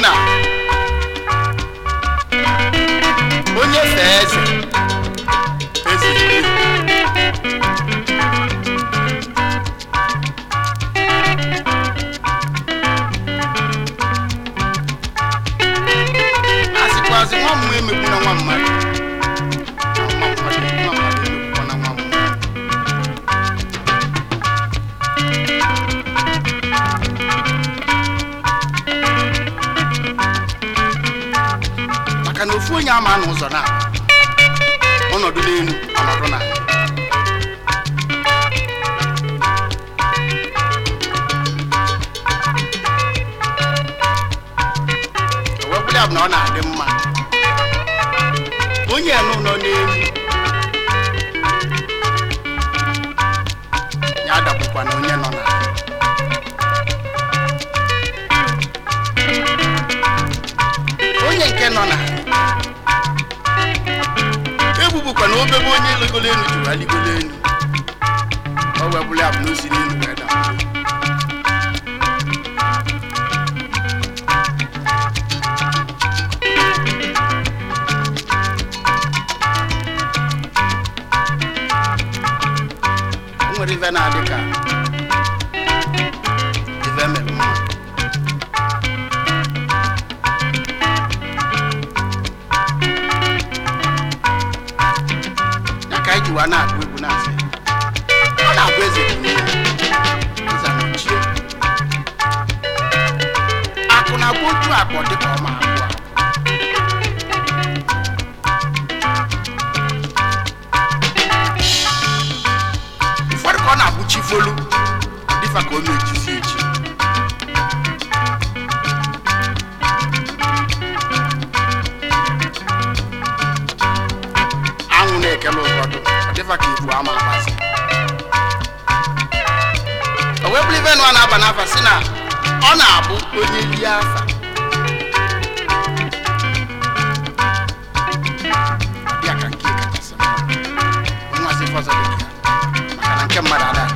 na onye ama na ụzọ na ọnọdụ n'elu ọnọdụ na owepụrụ ya bụ na ọ na-adị mma onye ya n'ụlọ n'elu ya adakwụkwa na onye nọ ebe onye ligolo elu jụrụ aligolo elu o wee bụrụ n'elu wee daa Ọ na-agụ egwu na-asị ọ na-abụ eze dị ọ nza na ochie akụ na agba otu dị ka ọma abụọ ụfọdụ ka ọ na-abụchi folu dị ka o na ọma mgbazi o bliven bụrụ na-aba n'afa si na ọ na-abụ onye rie afa ya ka nke kachasị mma onye nwazi fọzọ dị ka maka na nke mmadụ ada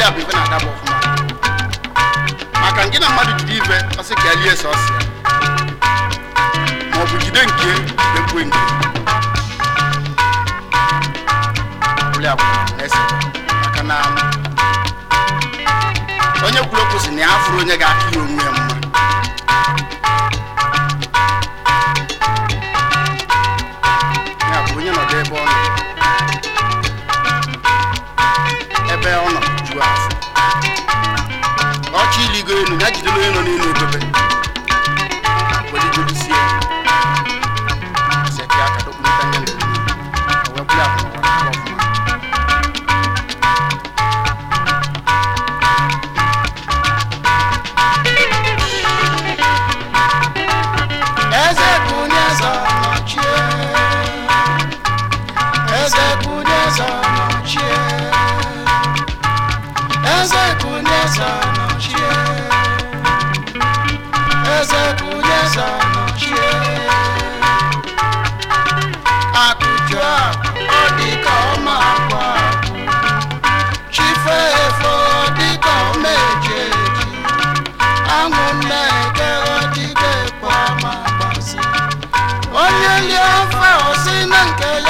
ya bụ ife na-adaba ọfụma maka nke na mmadụ jide ife ọsị ka elie sọsị ya maọbụ jide nke ekwe nke ọbụla na-ese maka na onye kwuru okwu si na ya fụrụ onye ga-akụ ya onwe ya elu ya jidere onye nọ n'elu odobe elie o si na nke ya